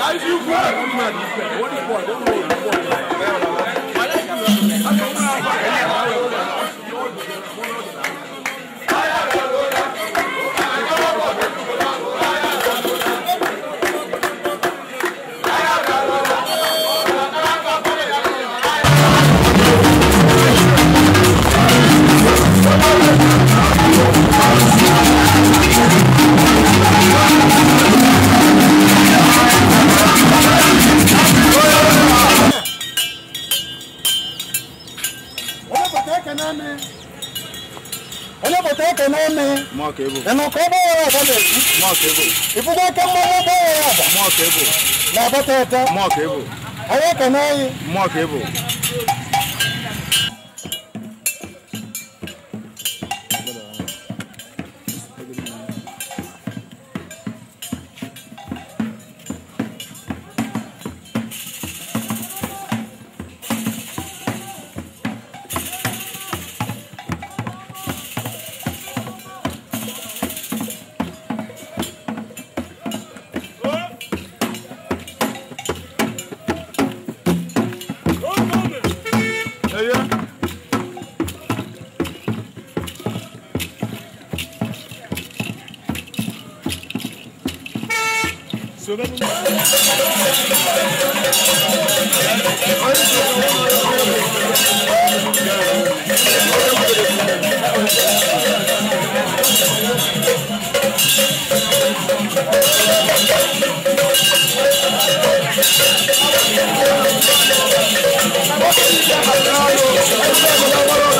Guys, you work. What is what? What is what? ekene eme ịnụkọ ebe ọba na-ebu ịfụgo aka mmanụ ọba na-abata ụta anyị Thank you.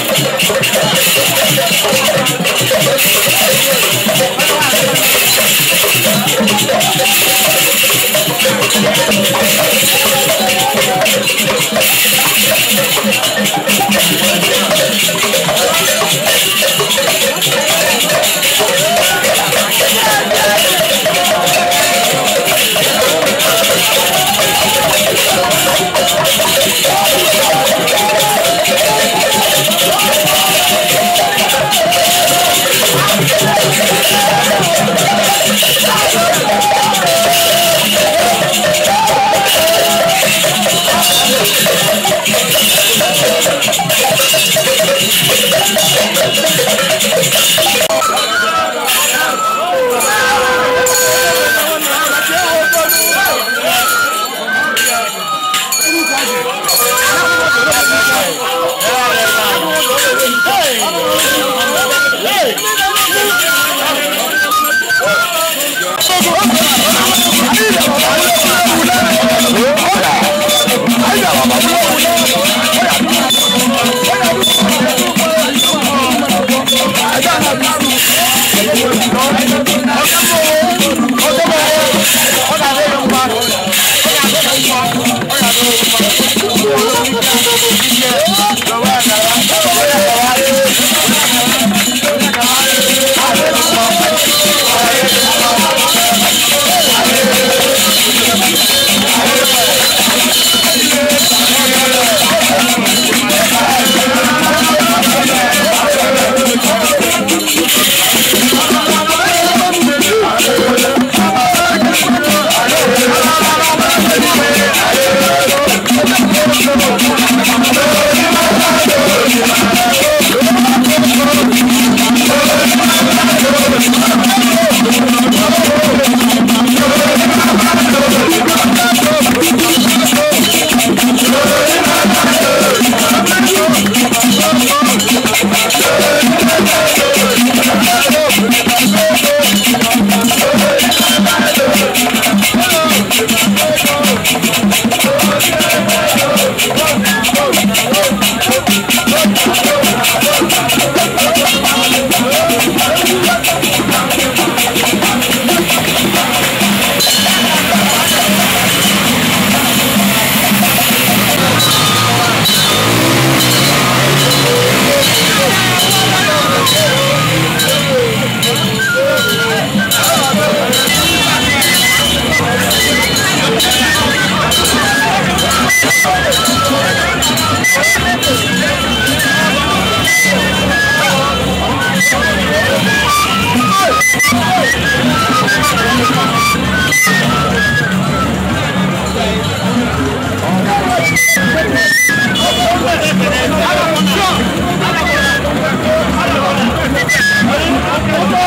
I'm sorry.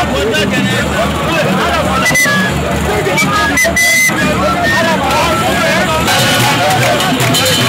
Thank you.